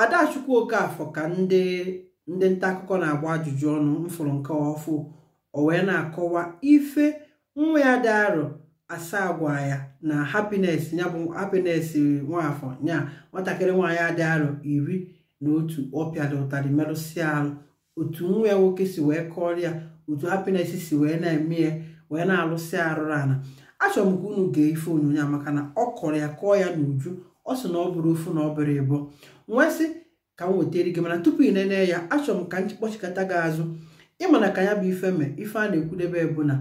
adachukwu okafọ ka ndị ndị nta akụkọ na-agba ajụjụ ọnụ mfụrụ nke ọfụ o wee na-akọwa ife nwa ya dị arọ asaa gwa ya na hapines ya bụ happiness nwafọ nya nwatakịrị nwaanyị adịghị arọ iri na otu ọ pịara ụtarị merụsị arụ otu nwa ya nwoke si wee kọrịa otu hapines si wee na-eme ya wee na-alụsị arụrụ ana achọrọ m ka unu gee ife onyonyo maka na ọ kọrọ ya kọọ ya n'uju ọ sị na ọ bụrụ ofu na ọ bụrụ ịbụ nwesị ka m wetere gị mana tupu ị nene ya achọrọ m ka m kpọchikọta gị azụ ịmana ka ya bụ ife mee ife a na-ekwudebe bụ na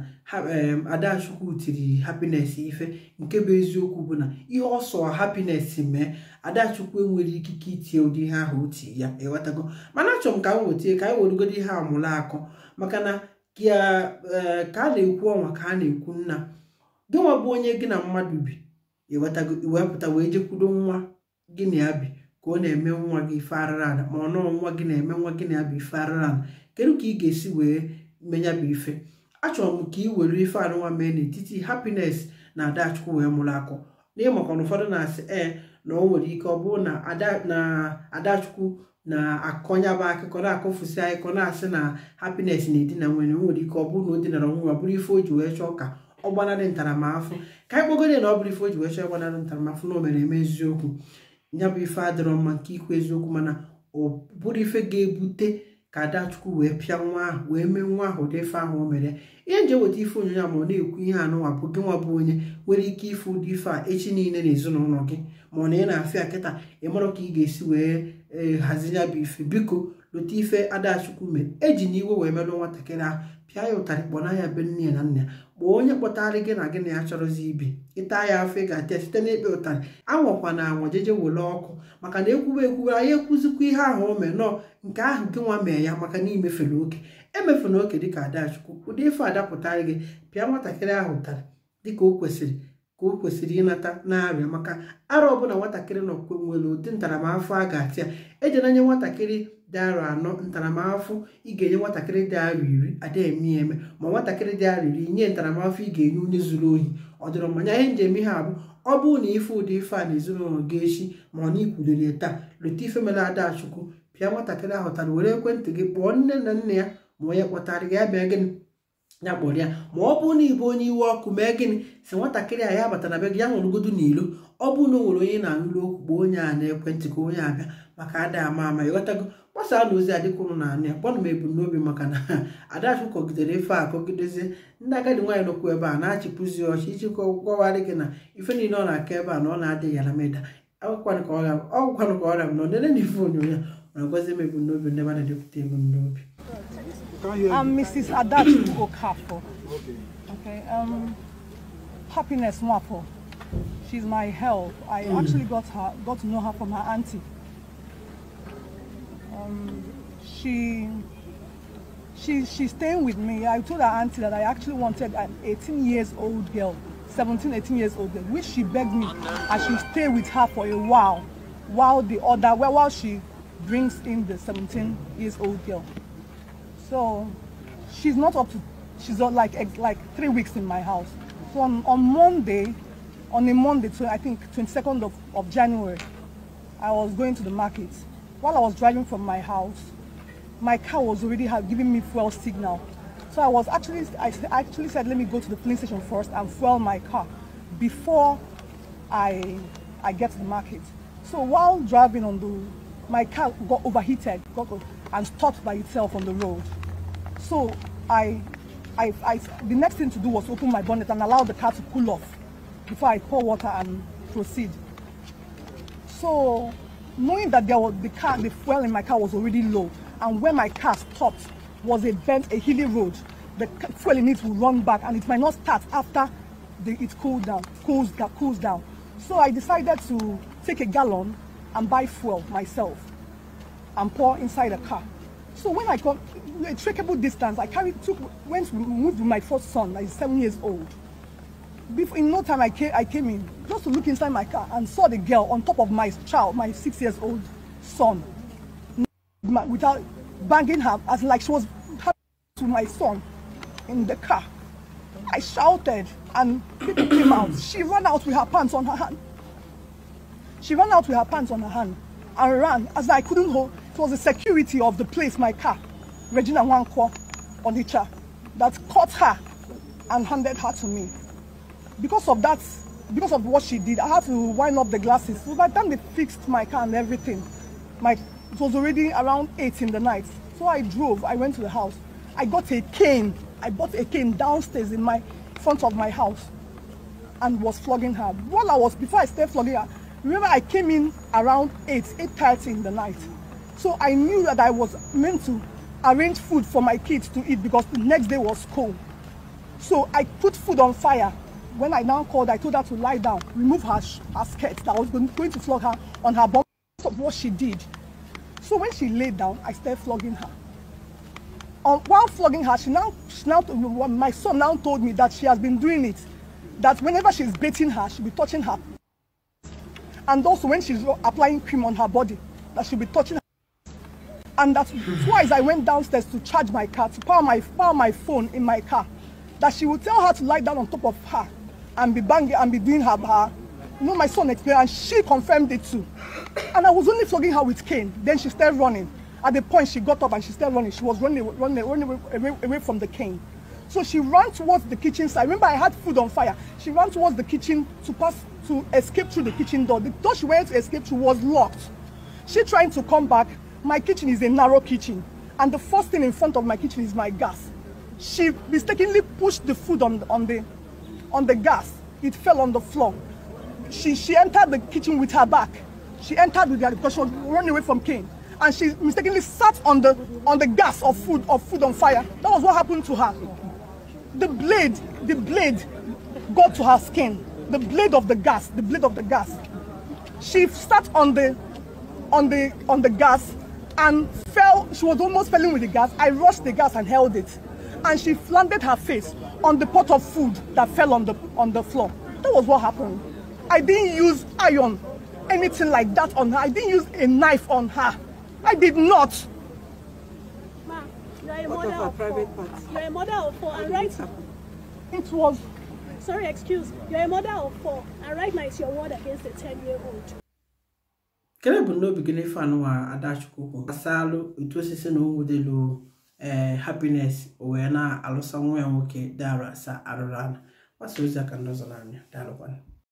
Adachukwu tiri hapines ife nke bụ eziokwu bụ na ihe ọsọ hapines mee Adachukwu enwere ikike itie ụdị ihe ahụ oti ya ewetago mana achọrọ m ka m wetie ka anyị werugodi ihe amụla akụ maka na eh, ka a na-ekwu ọnwa ka a na-ekwu nna gị bụ onye gị na mmadụ bi iwepụta wee jekwudo nwa gị na bi ka ọ na-eme nwa gị ife arịrị ma ọ nọọ nwa gị na-eme nwa gị na ya bụ ife kedu ka ị ga-esi wee menya bụ ife achọrọ m ka ị were ife anụnwa mee n'etiti hapines na adachukwu wee mụrụ akọ n'ịmakwana ụfọdụ na-asị ee na o nwere ike ọ bụrụ na adachukwu na-akọnyaba akụkọ na-akọfusi akụkọ na-asị na hapines na-edina nwere nwere ike ọ bụrụ na o dinara nwa bụrụ ife o ji wee chọọ ka ọgbanarị ntaramahụhụ ka anyị kpọgoro na ọ bụrụ ife o ji wee chọọ ịgbanarị ntaramahụhụ na o mere eme eziokwu ya bụ ife adịrọ mma nke ikwu eziokwu mana ọ bụrụ ife ga-ebute ka adachukwu wee pịa nwa ahụ wee mee nwa ahụ ụdị ife ahụ o mere ihe nje weta ife onyonyo a ma ọ na-ekwu ihe anụwapụ gị nwa bụ onye nwere ike ife ụdị ife a echi niile n'ezinụlọ gị ma ọ na ị na-afịa kịta ịmara ka ị ga-esi wee e, hazi ya bụ ife biko lụta ife adachukwu mere eji na iwe wee merụ nwatakịrị ahụ pịa ya ụtarị na ya be nne ya na nna ya kpọọ onye kpọtarị gị na gị na ya chọrọzi ibi ịta ya afọ ịga ga-atịa site n'ekpe ụtarị anwakwa na anwa jeje wele ọkụ maka na ekwuwe ekwuwe anyị ekwuzikwa ihe ahụ o mee nọọ nke ahụ gị nwa mee ya maka na imefere oke emefuna oke dịka adachukwu ụdị ife adapụtarị gị pịa nwatakịrị ahụ ụtarị dịka o kwesịrị ka o kwesịrị ịnata na-arịa maka arọ ọbụla nwatakịrị na nwere ụdị ntaramahụhụ a ga-atị ya ejenanye nwatakịrị dị arọ anọ ntaramahụhụ ị ga-enye nwatakịrị dị arọ iri ada eme eme ma nwatakịrị dị arọ iri nye ntaramahụhụ ị ga-enye onye zuru ohi ọ dịrọ mmanya ihe njem ihe abụ ọ bụụ na ife ụdị ife a na ezinụlọ gị echi ma ọ na ikwulere taa leta ife mere Adachukwu pịa nwatakịrị ahụtara were ekwentị gị kpọọ nne na nna ya ma onye kpọtara gị ya bịa gịnị ya kpọrọ ya ma ọ bụrụ na ịbụ onye iwe ọkụ mee gịnị si nwatakịrị a ya bata na be gị ya nwụrụgodo n'ilo ọ bụ na o nwere onye na-anụrụ okwu gbuo onye a na-ekwentị ka onye abịa maka ada ama ama ịghọtago gbasaa na ozi adịka ụnụ na-anụ ya kpọnụ m ebumnobi maka na adachụ kọgidere ife a kọgidezie ndị agadi nwaanyị nọkwu ebe a na-achịpụzi ọchị iji gọwarị gị na ife niile ọ na-aka ebe a na ọ na-adịghị ala meda ọgwụkwanụ ka ọrịa m nọ nele na ife onyonyo ya na m ebumnobi ndị mmadụ depụta ebumnobi I'm um, Mrs. Adachi Okafo. Okay. Okay. Um, happiness Mwapo. She's my help. I mm. actually got her, got to know her from her auntie. Um, she, she, she's staying with me. I told her auntie that I actually wanted an 18 years old girl, 17, 18 years old girl, which she begged me I should stay with her for a while, while the other, while she brings in the 17 years old girl. So she's not up to, she's like like three weeks in my house. So on, on Monday, on a Monday, so I think 22nd of, of January, I was going to the market. While I was driving from my house, my car was already giving me fuel signal. So I was actually, I actually said, let me go to the police station first and fuel my car before I, I get to the market. So while driving on the, my car got overheated got, and stopped by itself on the road. So I, I, I, the next thing to do was open my bonnet and allow the car to cool off before I pour water and proceed. So knowing that there was the car, the fuel in my car was already low, and where my car stopped was a bent, a hilly road. The fuel in it will run back, and it might not start after the, it cooled down, cools, cools down. So I decided to take a gallon and buy fuel myself and pour inside the car. So when I come, a trackable distance, I carried, took, went to move with my first son, like seven years old. Before, in no time, I came, I came in just to look inside my car and saw the girl on top of my child, my six years old son, without banging her, as like she was to my son in the car. I shouted and people came out. She ran out with her pants on her hand. She ran out with her pants on her hand and ran as I couldn't hold. It was the security of the place, my car, Regina Wanko Onicha, that caught her and handed her to me. Because of that, because of what she did, I had to wind up the glasses. So by the time they fixed my car and everything, my, it was already around 8 in the night. So I drove, I went to the house. I got a cane. I bought a cane downstairs in my front of my house and was flogging her. While I was, before I started flogging her, remember I came in around 8, 8.30 in the night. So I knew that I was meant to arrange food for my kids to eat because the next day was cold. So I put food on fire. When I now called, I told her to lie down, remove her, her skirt that I was going, to flog her on her body of what she did. So when she laid down, I started flogging her. Um, while flogging her, she now, she now, um, my son now told me that she has been doing it. That whenever she's beating her, she'll be touching her. And also when she's applying cream on her body, that she'll be touching her. And that twice I went downstairs to charge my car, to power my, power my phone in my car. That she would tell her to lie down on top of her and be banging and be doing her bar. You know, my son And she confirmed it too. And I was only flogging her with cane. Then she started running. At the point, she got up and she started running. She was running, running, running away, away from the cane. So she ran towards the kitchen side. Remember, I had food on fire. She ran towards the kitchen to pass to escape through the kitchen door. The door she went to escape through was locked. She trying to come back. My kitchen is a narrow kitchen, and the first thing in front of my kitchen is my gas. She mistakenly pushed the food on, on, the, on the gas. It fell on the floor. She, she entered the kitchen with her back. She entered with her because she was running away from Cain. And she mistakenly sat on the, on the gas of food, of food on fire. That was what happened to her. The blade, the blade got to her skin. The blade of the gas, the blade of the gas. She sat on the on the on the gas and fell. She was almost falling with the gas. I rushed the gas and held it. And she slanted her face on the pot of food that fell on the, on the floor. That was what happened. I didn't use iron, anything like that on her. I didn't use a knife on her. I did not. Ma, you're a mother of, four. You're a mother of four, and right? It was. Sorry, excuse. You're a mother of four, and right now it's your word against a 10-year-old. kere bụ n'obi gị n'ife anụwa adachukwu asalụ gbasalụ otu osisi na onwu delu ee eh, hapines o wee na-alụsa nwa ya nwoke dara sa arụrụ ala gbasa ozi aka ndị ọzọ n'anya daalụkwanụ